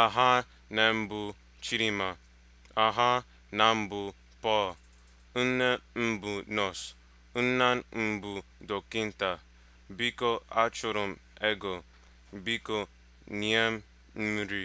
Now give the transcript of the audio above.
aha na mbụ Chidinma aha na mbụ pọl, nne mbụ nọọsụ nna mbụ dọkịta biko achọrọ m ego biko nyem nri